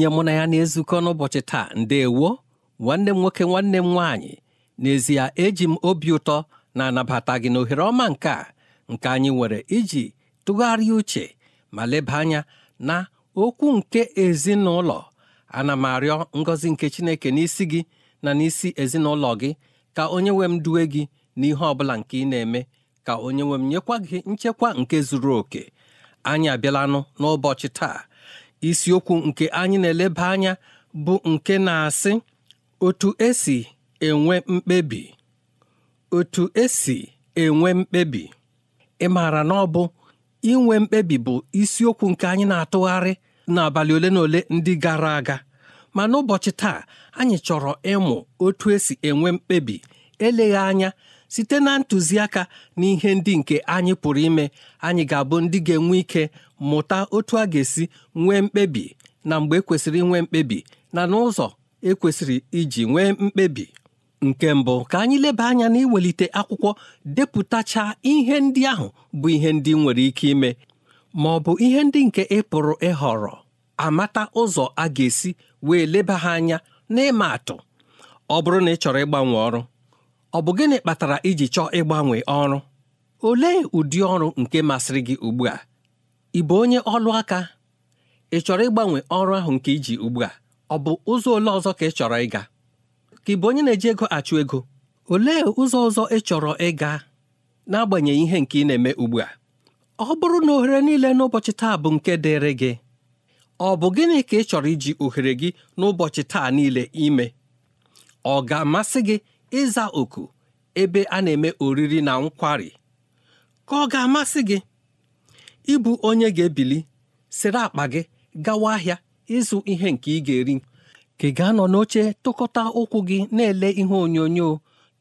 onye mụ na ya na-ezukọ n'ụbọchị taa ndeewo nwanne m nwoke nwanne m nwaanyị n'ezie eji m obi ụtọ na-anabata gị n'ohere ọma nke a nke anyị nwere iji tụgharịa uche ma leba anya na okwu nke ezinụlọ ana m arịọ ngọzi nke chineke n'isi gị na n'isi ezinụlọ gị ka onye nwe m duwe gị n'ihe ọ bụla nke ị na-eme ka onye nwe m nyekwa gị nchekwa nke zuru oke anyị abịalanụ n'ụbọchị taa isiokwu nke anyị na-eleba anya bụ nke na-asị otu esi enwe mkpebi otu esi enwe mkpebi ị maara na ọ bụ inwe mkpebi bụ isiokwu nke anyị na-atụgharị n'abalị ole na ole ndị gara aga ma n'ụbọchị taa anyị chọrọ ịmụ otu esi enwe mkpebi eleghị anya site na ntụziaka na ihe ndị nke anyị pụrụ ime anyị ga-abụ ndị ga-enwe ike mụta otu a ga-esi nwee mkpebi na mgbe ekwesịrị nwee mkpebi na n'ụzọ ekwesịrị iji nwee mkpebi nke mbụ ka anyị leba anya na iwelite akwụkwọ depụtacha ihe ndị ahụ bụ ihe ndị nwere ike ime ma ọ bụ ihe ndị nke ị pụrụ ịhọrọ amata ụzọ a ga-esi wee leba ha anya n'ịma atụ ọ bụrụ na ị chọrọ ịgbanwe ọrụ ọ bụ gịnị kpatara iji chọọ ịgbanwe ọrụ olee ụdị ọrụ nke masịrị gị ugbu a ị bụ onye ọlụ aka ị chọrọ ịgbanwe ọrụ ahụ nke iji ugbu a ọ bụ ụzọ ole ọzọ ka ị chọrọ ịga ka ị bụ onye na-eji ego achụ ego olee ụzọ ọzọ ị chọrọ ịga n'agbanyeghị ihe nke ị na-eme ugbu a ọ bụrụ na ohere niile n'ụbọchị taa bụ nke dịrị gị ọ bụ gịnị ka ị chọrọ iji ohere gị n'ụbọchị taa niile ime ọ ga-amasị gị ịza oku ebe a na-eme oriri na nkwari ka ọ ga-amasị gị ịbụ onye ga-ebili sịrị akpa gị gawa ahịa ịzụ ihe nke ị ga-eri ka ị ga-anọ n'oche tụkọta ụkwụ gị na-ele ihe onyonyo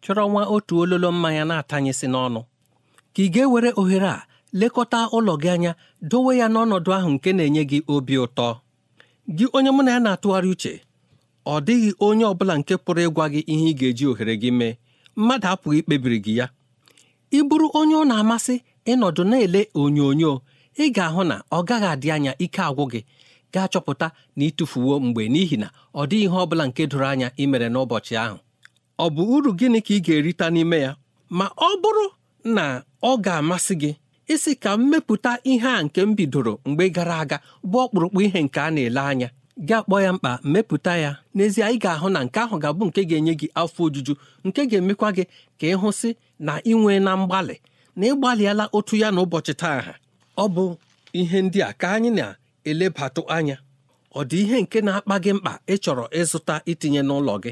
chọrọ nwa otu ololo mmanya na-atanyesị n'ọnụ ka ị ga-ewere ohere a lekọta ụlọ gị anya dowe ya n'ọnọdụ ahụ nke na-enye gị obi ụtọ gị onye mụ na ya na-atụgharị uche ọ dịghị onye ọ bụla nke pụrụ ịgwa gị ihe ị ga-eji ohere gị mee mmadụ apụghị ikpebiri gị ya ị bụrụ onye ọ na-amasị ịnọdụ na-ele onyonyo ị ga-ahụ na ọ gaghị adị anya ike agwụ gị ga-achọpụta na ịtụfuwo mgbe n'ihi na ọ dịghị ihe ọ bụla nke doro anya ị mere n'ụbọchị ahụ ọ bụ uru gịnị ka ị ga-erita n'ime ya ma ọ bụrụ na ọ ga-amasị gị isi ka m mepụta ihe a nke m bidoro mgbe gara aga bụ ọkpụrụkpụ ihe nke a na-ele anya gị akpọ ya mkpa mepụta ya n'ezie ị ga-ahụ na nke ahụ ga-abụ nke ga-enye gị afọ ojuju nke ga-emekwa gị ka ị hụsị na nwee na mgbalị na ịgbalịala otu ya na ụbọchị taa ọ bụ ihe ndị a ka anyị na-elebatụ anya ọ dị ihe nke na-akpa gị mkpa ị chọrọ ịzụta itinye n'ụlọ gị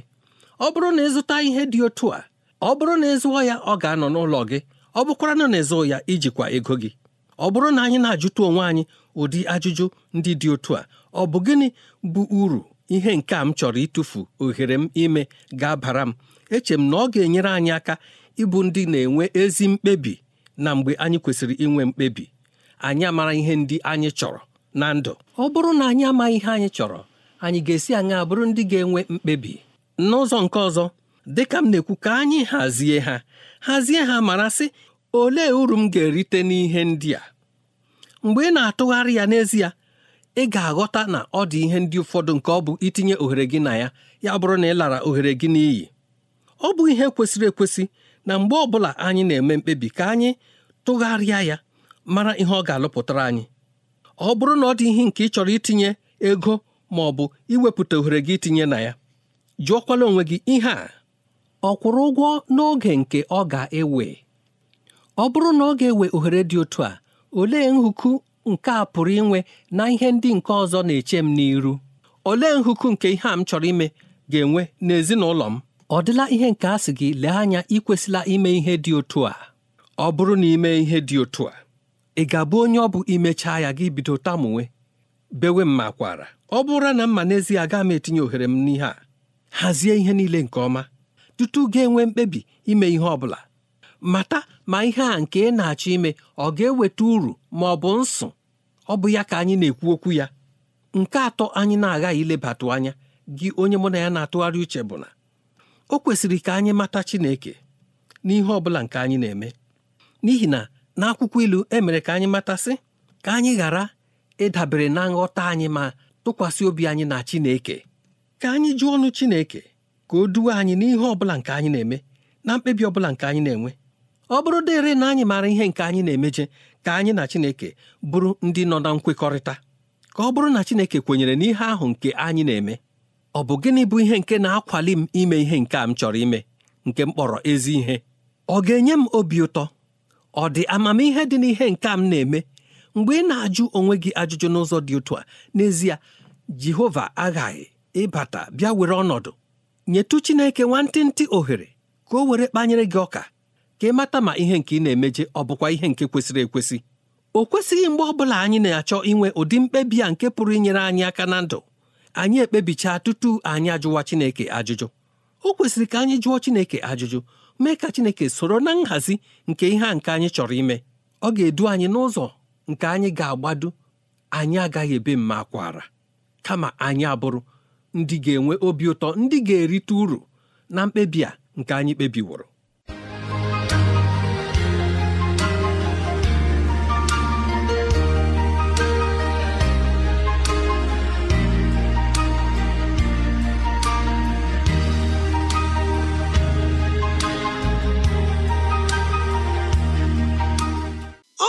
ọ bụrụ na ịzụta ihe dị otu a ọ bụrụ na ịzụọ ya ọ ga-anọ n'ụlọ gị ọ bụkwara na na ịzụ ya ijikwa ego gị ọ bụrụ na anyị na-ajụta onwe anyị ụdị ajụjụ ndị dị otu a ọ bụ gịnị bụ uru ihe nke a m chọrọ ịtụfu ohere m ime ga-abara m eche m na ọ ga-enyere anyị aka ịbụ ndị na-enwe ezi mkpebi na mgbe anyị kwesịrị inwe mkpebi anyị amara ihe ndị anyị chọrọ na ndụ ọ bụrụ na anyị amaghị ihe anyị chọrọ anyị ga-esi aṅa bụrụ ndị ga-enwe mkpebi n'ụzọ nke ọzọ ka m na-ekwu ka anyị hazie ha hazie ha mara sị olee uru m ga-erite n'ihe ndị a mgbe ị na-atụgharị ya n'ezie ị ga-aghọta na ọ dị ihe ndị ụfọdụ nke ọ bụ itinye ohere gị na ya ya bụrụ na ị lara ohere gị n'iyi ọ bụ ihe kwesịrị ekwesị na mgbe ọbụla anyị na-eme mkpebi ka anyị tụgharịa ya mara ihe ọ ga-alụpụtara anyị ọ bụrụ na ọ dị ihe nke ị chọrọ itinye ego ma ọ bụ iwepụta ohere gị itinye na ya jụọkwala onwe gị ihe a ọ kwụrụ ụgwọ n'oge nke ọ ga-ewe ọ bụrụ na ọ ga-ewe ohere dị otu a olee nhụku nke a pụrụ inwe na ihe ndị nke ọzọ na-eche m n'iru olee nhụku nke ihe a m chọrọ ime ga-enwe n'ezinụlọ m ọ dịla ihe nke a sị gị lee anya ikwesịla ime ihe dị otu a ọ bụrụ na ime ihe dị otu a ị ga-abụ onye ọ bụ imechaa ya gị bido tamunwe bewe m ma kwara ọ bụrụ na mma n'ezie agaghị m etinye ohere m n'ihe a hazie ihe niile nke ọma tutu ga-enwe mkpebi ime ihe ọ bụla mata ma ihe a nke ị na-achọ ime ọ ga-eweta uru ma ọ bụ nsụ ọ bụ ya ka anyị na-ekwu okwu ya nke atọ anyị na-aghaghị ilebatụ anya gị onye mụ na ya na-atụgharị uche bụ na o kwesịrị ka anyị mata Chineke n'ihe ọ bụla nke anyị na-eme n'ihi na n'akwụkwọ ilu e mere ka anyị matasị ka anyị ghara ịdabere na nghọta anyị ma tụkwasị obi anyị na Chineke ka anyị jụọ ọnụ Chineke ka o duwe anyị n'ihe ọ bụla nke anyị na-eme na mkpebi ọ bụla nke anyị na-enwe ọ bụrụ dịrị na anyị maara ihe nke anyị na-emeje ka anyị na Chineke bụrụ ndị nọ na nkwekọrịta ka ọ bụrụ na Chineke kwenyere n'ihe ahụ nke anyị na-eme ọ bụ gịnị bụ ihe nke na-akwali m ime ihe nke a m chọrọ ime nke m kpọrọ ezi ihe ọ ga-enye m obi ụtọ ọ dị amamihe dị n'ihe nke m na-eme mgbe ị na-ajụ onwe gị ajụjụ n'ụzọ dị otu a n'ezie Jehova aghaghị ịbata bịa were ọnọdụ nyetụ Chineke nwantịntị ohere ka o were kpanyere gị ọka ka mata ma ihe nke ị na-emeje ọ bụkwa ihe nke kwesịrị ekwesị o kwesịghị mgbe ọbụla anyị na-achọ inwe ụdị mkpebi a nke pụrụ inyere anyị aka na ndụ anyị ekpebichaa tutu anyị ajụwa Chineke ajụjụ o kwesịrị ka anyị jụọ Chineke ajụjụ mee ka Chineke soro na nhazi nke ihe a nke anyị chọrọ ime ọ ga-edu anyị n'ụzọ nke anyị ga-agbado anyị agaghị ebe mma akwara kama anyị abụrụ ndị ga-enwe obi ụtọ ndị ga-erite uru na mkpebi a nke anyị kpebiworo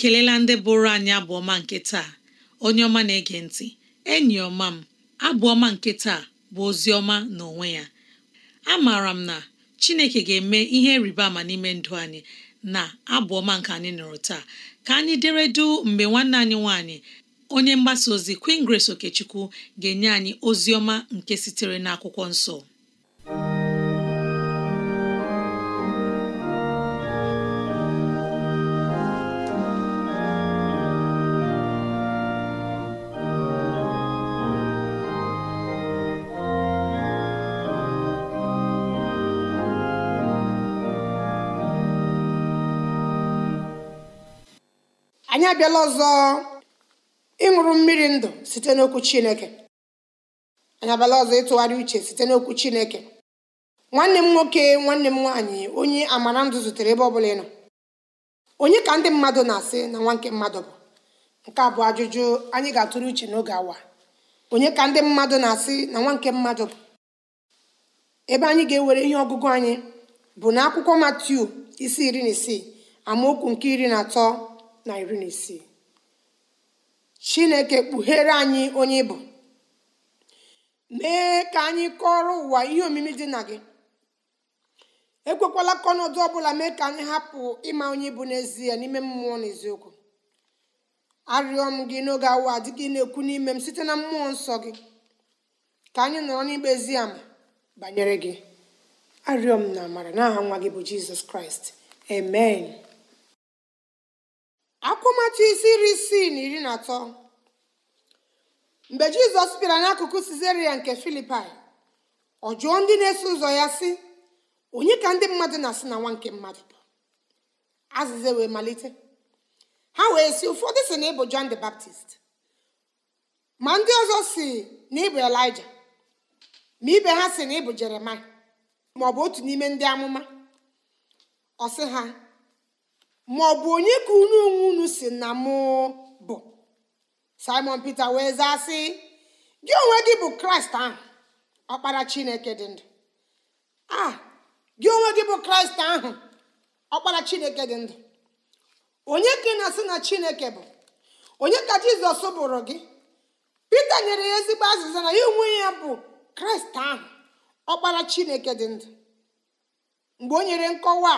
ekelela ndị bụrụ anyị abụọma nke taa onye ọma na-ege ntị enyi ọma m abụọma nke taa bụ ozi ọma na onwe ya maara m na Chineke ga-eme ihe rịba ama n'ime ndụ anyị na abụọma nke anyị nụrụ taa ka anyị deredu mgbe nwanne anyị nwanyị. onye mgbasa ozi Queen Grace Okechukwu ga-enye anyị ozi ọma nke sitere n'akwụkwọ nsọ abịala ọzọ ịṅụrụ mmiri ndụ site n'okwu chineke anyị abịala ọzọ ịtụgharị uche site n'okwu chineke nwanne m nwoke nwanne m nwaanyị onye amara ndụ zutere ebe ọ bụla ịnọ onye ka ndị mmadụ na-asị na nwa nke mmadụ bụ nke a bụ ajụjụ anyị ga-atụrụ uche n'oge awa onye ka ndị mmadụ na-asị na nwa nke mmadụ bụ ebe anyị ga-ewere ihe ọgụgụ anyị bụ na akwụkwọ matiu isi iri na isii amaokwu nke iri na atọ na iri na isii chineke kpughere anyị onye ịbụ mee ka anyị kọrọ ụwa ihe omimi dị na gị ekwekwala ka ọnọdụ ọ bụla mee ka anyị hapụ ịma onye ịbụ n'ezie n'ime mmụọ na eziokwu arịọ m gị n'oge awa dị gị na-ekwu n'ime m site na mmụọ nsọ gị ka anyị nọrọ n'ikpe ezi ama banyere gị arịọ m na amara n'aha nwa gị bụ jizọs kraịst amen akwụmatụ isi iri isii na iri na atọ mgbe jizọs bịara n'akụkụ sizeria nke filipai ọ jụọ ndị na-eso ụzọ ya sị onye ka ndị mmadụ na-asị na nwa nke mmadụ bụ azịza wee malite ha wee si ụfọdụ si na ịbụ John the Baptist ma ndị ọzọ si na ịbụ Elijah ma ibe ha si na ịbụ ma ọ otu n'ime ndị amụma ọ sị ha ma ọ bụ onye ka unu onwe unu si na mụ bụ simon peter wee zaa sị gị onwe gị bụ kraịst ahụ ọkpara chineke dị ndụ a gị onwe gị bụ kraịst ahụ ọkpara chineke dị ndụ onye ka ị na-asị na chineke bụ onye ka jizọs bụrụ gị pita nyere ya ezigbo azịza na ya onwe ya bụ kraịst ahụ ọkpara chineke dị ndụ mgbe o nyere nkọwa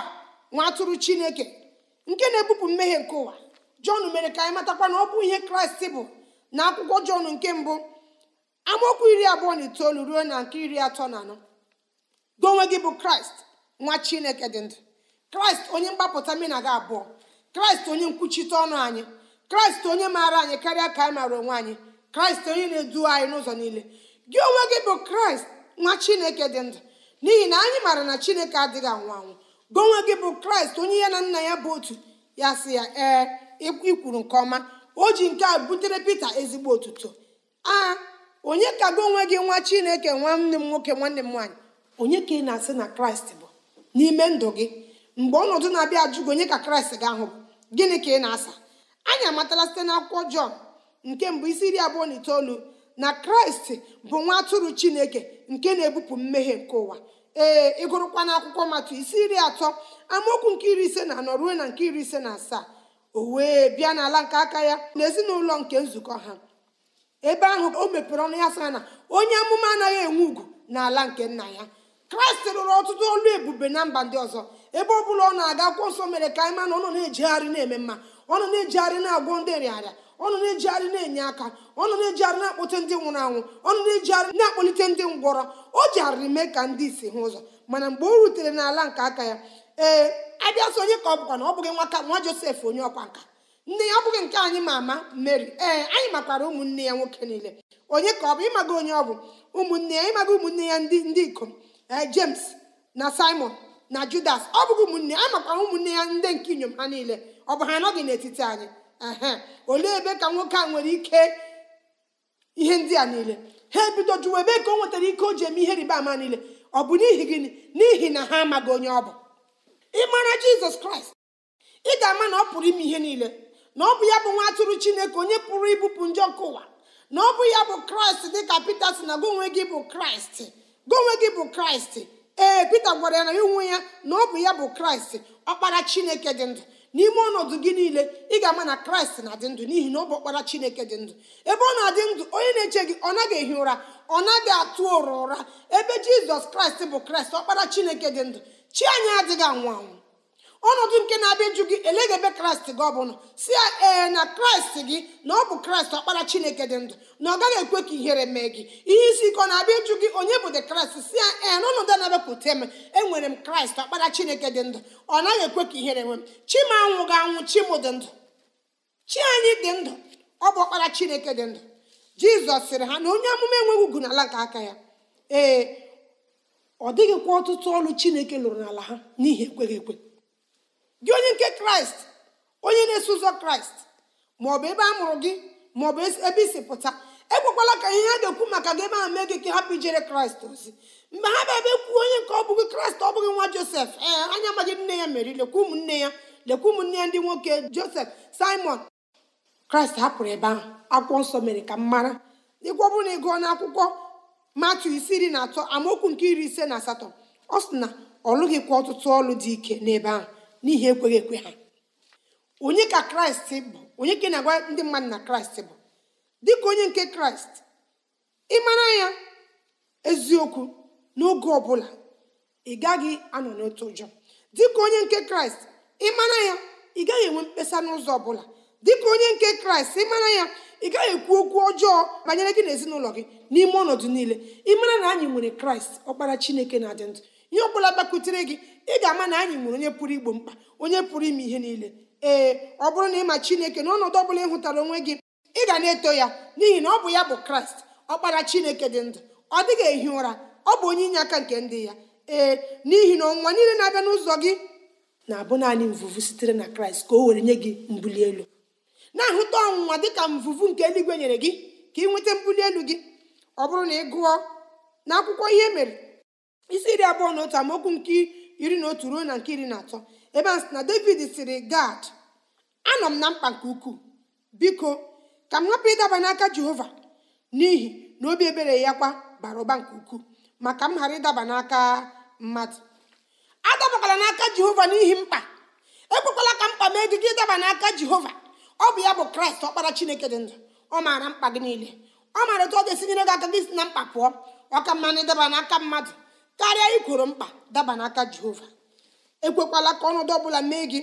nwa atụrụ chineke nke na-ebupụ mmehie nke ụwa jọn mere ka anyị matakwa na ọ bụ ihe kraịst bụ na akwụkwọ jọn nke mbụ amaokwu iri abụọ na itoolu ruo na nke iri atọ na anọ gị onwe gị bụ kraịst nwa chineke dị ndụ kraịst onye mgbapụta mena gị abụọ kraịst onye nkwuchite ọnụ anyị kraịst onye maara anyị karịa ka anyị maara onwe anyị kraịst onye na-edu anyị n'ụzọ niile gị onwe gị bụ kraịst nwa chineke dị ndụ n'ihi na anyị maara na chineke adịghị anwụ anwụ gonwe gị bụ kraịst onye ya na nna ya bụ otu ya sị ya ee ikwuru nke ọma o ji nke a butere pita ezigbo otuto a onye ka gị onwe gị nwa chineke nwanne m nwoke nwanne m nwaanyị onye ka ị na-asị na kraịst bụ n'ime ndụ gị mgbe ọnọdụ na-abịa ajụ gị onye ka kraịst ga-ahụ gịnị ka ị na-asa anyị amatala site na akwụkwọ jọn nke mbụ isi iri abụọ na itoolu na kraịst bụ nwa atụrụ chineke nke na-ebupụ mmehie nke ụwa ee ịgụrụkwa na akwụkwọ matụ isi iri atọ amaokwu nke iri ise na anọ ruo na nke iri ise na asaa o wee bịa n'ala nke aka ya na ezinụlọ nke nzukọ ha ebe ahụ o mepere ọnụ ya sị na onye amụma anaghị enwe ugwu n'ala nke nna ya kraịst rụrụ ọtụtụ olu ebube na mba ndị ọzọ ebe ọ bụla ọ na-aga akwụkwọ nsọ mere ka anyị ma na ọ nọ na ejigharị na-eme mma ọ nọ na ejigharị na-agwọ ndị nrịarịa ọ nọ na ejigharị na-enye aka ọ nọ na ejigharị na akpụte ndị nwụrụ anwụ ọ nọ na ejigharị na akpụlite ndị ngwọrọ o arịrị mee ka ndị isi hụ ụzọ mana mgbe o rutere n'ala nke aka ya ee abịa sị onye ka ọ bụkwa na ọ bụghị nwaka nwa josef onye ọkwa nka nne ya ọ bụghị nke anyị ma ama mary ee anyị makwara ụmụnne ya nwoke niile onye ka ọ bụ ịmaga onye ọ bụ ụmụnne ya ịmaga ụmụnne ya ndị ndị ikom james na simon na judas ọ bụghị ụmụnne anyị makwara ụmụnne ya ndị nke inyom ha niile ọ bụ ha anọghị n'etiti anyị ehe olee ebe ka nwoke a nwere ike ihe ndị a niile ha ebido jụwa ebe ka o nwetara ike o ji eme ihe riba ama niile ọ bụ n'ihi gịnị n'ihi na ha amaghị onye ọ bụ ịmara jizọs kraịst ị ga-ama na ọ pụrụ ime ihe niile na ọ bụ ya bụ nwa atụrụ chineke onye pụrụ ibupụ njọ nke ụwa na ọ bụ ya bụ kraịst dị ka pete si na gonwe gị bụ kraịst gonwe gị bụ kraịst ee pete gwara ya na onwe ya na ọ bụ ya bụ kraịst ọkpara chineke dị ndụ n'ime ọnọdụ gị niile ị ga-ama na kraịst na-adị ndụ n'ihi na ọ bụ ọkpara chineke dị ndụ ebe ọ na-adị ndụ onye na-eche gị ọ naghị ehi ụra ọ naghị atụ ụra ụra ebe jizọs kraịst bụ kraịst ọkpara chineke dị ndụ chi anyị adịghị anwụ anwụ ọnọdụ nke na-abịa ịjụ gị eleghị ebe kraịst gị ọbụla si ya ee na kraịst gị na ọ bụ kraịst ọkpara chineke dị ndụ na ọ gaghị ekwe ka ihere mee gị ihe isi ike ọ na-abịa ịjụ gị onye bụ dị kraịst si ya ee na ọnọdụ na-abịapụta m enwere m kraịst ọkpara chineke dị ndụ ọ naghị ekwe ka ihere nwe m chi anwụ ga anwụ chi dị ndụ chi anyị dị ndụ ọ bụ ọkpara chineke dị ndụ jizọs sịrị ha na onye amụma enweghị ugwu n'ala nke aka ya ee ọ dịghịkwa ọtụtụ ọrụ chineke lụrụ n'ala ha n'ihi ekweghị ekwe gị onye nke kraịst onye na-eso ụzọ kraịst maọbụ ebe a mụrụ gị maọbụ ebe isi pụta ekwekwala ka ihe ha ga ekwu maka gị ebe ahụ mee gị ka hapụ ijere kraịst ozi mgbe ha bịa ebe kwuo onye nke ọ bụghị kraịst ọ bụghị nwa josef ee anya magị nne ya meri lekwa ụmụnne ya lekwa ụmụnne ya ndị nwoke josef simon kraịst hapụrụ ebe ahụ akwụkwọ nsọ mere ka m mara ịgwọ bụrụ na ị gụọ n'akwụkwọ matu isi iri na atọ amaokwu nke iri ise na asatọ ọ sị na ọ lụghịkwa ọtụtụ ọlụ dị ike n'ebe ahụ n'ihi ekweghị ekwe ha onye ka kraịst bụ onye ka na-agwa ndị mmadụ na kraịst bụ dịka onye nke kraịst mara ya eziokwu n'oge ọbụla ị gaghị anọ n'otu ụjọ dịka onye nke kraịst mara ya ị gaghị enwe mkpesa n'ụzọ ọbụla dịka onye nke kraịst ịmara ya ị gaghị ekwu okwu ọjọọ banyere gị na ezinụlọ gị n'ime ọnọdụ niile ịmara na anyị nwere kraịst ọkpara chineke na-adị ndụ ihe ọbụla gbakwutere gị ị ga-ama na anyị nwere onye pụrụ igbo mkpa onye pụrụ ime ihe niile ee ọ bụrụ na ịma chineke na ọnọdụ ọbụla ị hụtara onwe gị ị ga na-eto ya n'ihi na ọ bụ ya bụ kraịst ọkpara chineke dị ndụ ọ dịghị ehi ụra ọ bụ onye inye aka nke ndị ya ee n'ihi na ọnwa niile na-abịa n'ụzọ gị na-abụ naanị mvụvụ sitere na kraịst ka o were nye gị mbuli elu na-ahụta ọnwụnwa dịka mvụvụ nke eluigwe nyere gị ka ị nweta mbuli elu gị ọ bụrụ na ị gụọ na akwụkwọ ihe e mere isi iri abụọ na otu amaokwu nke iri na otu ruo na nke iri na atọ ebe a na david sịrị gad anọ m na mkpa nke ukwuu biko ka m hapụ ịdaba n'aka jehova n'ihi na obi ebere ya kwa bara ụba nke ukwuu maka m ghara ịdaba n'aka mmadụ adabakwala n'aka jehova n'ihi mkpa ekwekwala ka mkpa mee gị ịdaba n'aka jehova ọ bụ ya bụ kraịst ọkpara chineke dị ndụ ọ maara mkpa gị niile ọ maara otu ọ ga-esi nyere gị aka gị si na mkpa pụọ ọ ka mma na ịdaba n'aka mmadụ karịa igworo mkpa daba n'aka jehova ekwekwala ka ọnọdụ ọbụla mee gị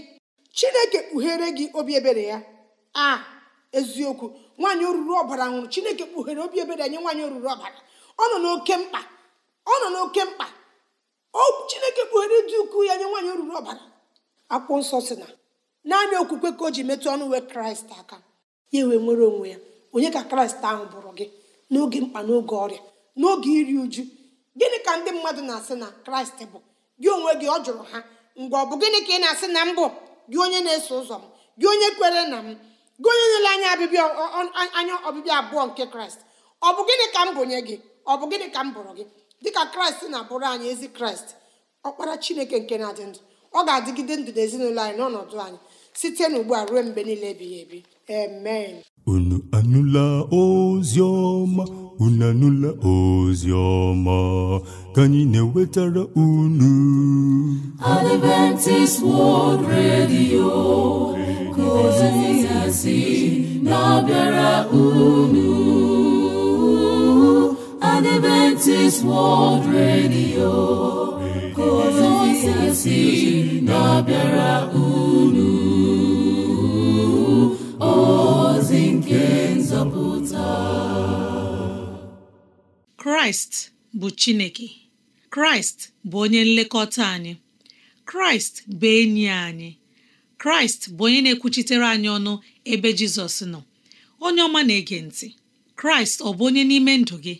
chineke kpughere gị obi ebere ya a eziokwu nwaanyị oruru ọbara nwụrụ chineke kpughere obi ebere nye nwaanyị oruru ọbara ọ nọ n'oke mkpa ọ nọ n'oke mkpa chineke kpughere ịdị ukwu ya nye nwaanyị oruru ọbara akwụkwọ nsọ si na naanị okwukwe ka o ji metụ ọnụ uwe kraịst aka ya wee nwere onwe ya onye ka kraịst ahụ bụrụ gị n'oge mkpa n'oge ọrịa n'oge iri uju gịnị ka ndị mmadụ na-asị na kraịst bụ gị onwe gị ọ jụrụ ha mgbe ọ bụ gịnị ka ị na-asị na mbụ gị onye na-eso ụzọ m gị onye kwere na m gị onye nyere anya ọbịbịa anya ọbịbịa abụọ nke kraịst ọ bụ gịnị ka m bụnye gị ọ bụ gịnị ka m bụrụ gị dịka kraịst na-abụrụ anyị ezi kraịst ọkpara chineke nke na-adị ndụ ọ ga-adịgide ndụ ezinụlọ anyị n'ọnọdụ anyị site n'ugbu a ruo mgbe niile ebighị ebi amen unu anụla unu n'ụlọ ozi ọma ka anyị na-ewetara unu Adventist World Radio ka ozi ya na-abịara unu Adventist World Radio ka ozi ya na-abịara unu kraịst bụ chineke kraịst bụ onye nlekọta anyị kraịst bụ enyi anyị kraịst bụ onye na-ekwuchitere anyị ọnụ ebe jizọs nọ onye ọma na-ege ntị kraịst ọ bụ onye n'ime ndụ gị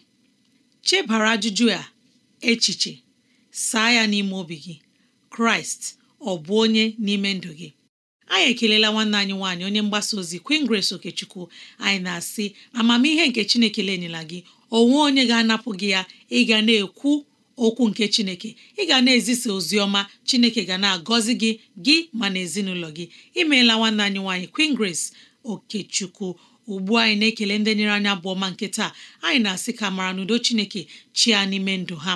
chebara ajụjụ a echiche saa ya n'ime obi gị kraịst ọ bụ onye n'ime ndụ gị anyị ekelela nwanne anyị nwaanyị onye mgbasa ozi Queen Grace Okechukwu anyị na-asị amamihe nke Chineke lenyela gị onwe onye ga-anapụ gị ya ị ga na-ekwu okwu nke chineke ị ga na-ezisa ozi ọma chineke ga na-agọzi gị gị ma na ezinụlọ gị imeela nwanne anyị nwaanyị Queen Grace Okechukwu ugbu anyị na-ekele ndị nyere anyị abụọ ma nke taa anyị na-asị ka mara n'udo chineke chia n'ime ndụ ha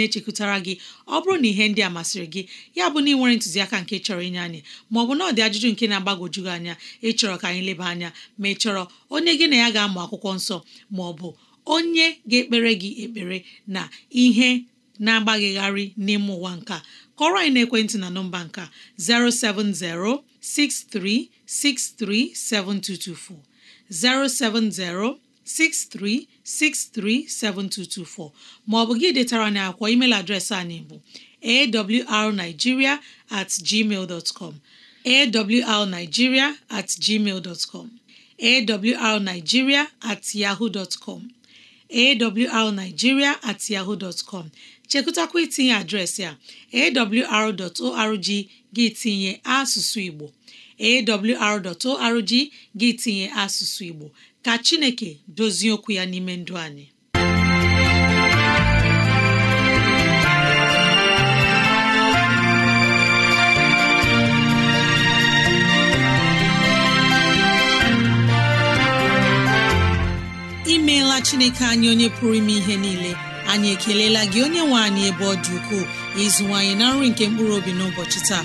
na-echekwutara gị ọ bụrụ na ihe ndị a masịrị gị ya bụ na ịnwere ntụziaka nke chọrọ inye anyị maọbụ na ọdị ajụjụ nke na-agbagwoju gị anya ịchọrọ ka anyị leba anya ma ị chọrọ onye gị na ya ga-amụ akwụkwọ nsọ bụ onye ga-ekpere gị ekpere na ihe na-agbaghịgharị n'ime ụwa nka kọrọ anyị n'ekwentị na nọmba nka 07063637224 070 63637224 maọbụ gị detara na akwọ email adreesị anyị bụ awrnigeria at gmail dot com awrnigeria at gmail dot com awrnigeria at yahoo dot com awrnigeria at yahoo dot com chekụtakwa itinye adreesị a awr.org gị tinye asụsụ Igbo awr.org gị tinye asụsụ Igbo ka Chineke dozie okwu ya n'ime ndụ anyị imeela Chineke anyị onye pụrụ ime ihe niile anyị ekelela gị onye nwe anyị ebe ọ dị ukwuu ịzụwanyị na nri nke mkpụrụ obi n'ụbọchị taa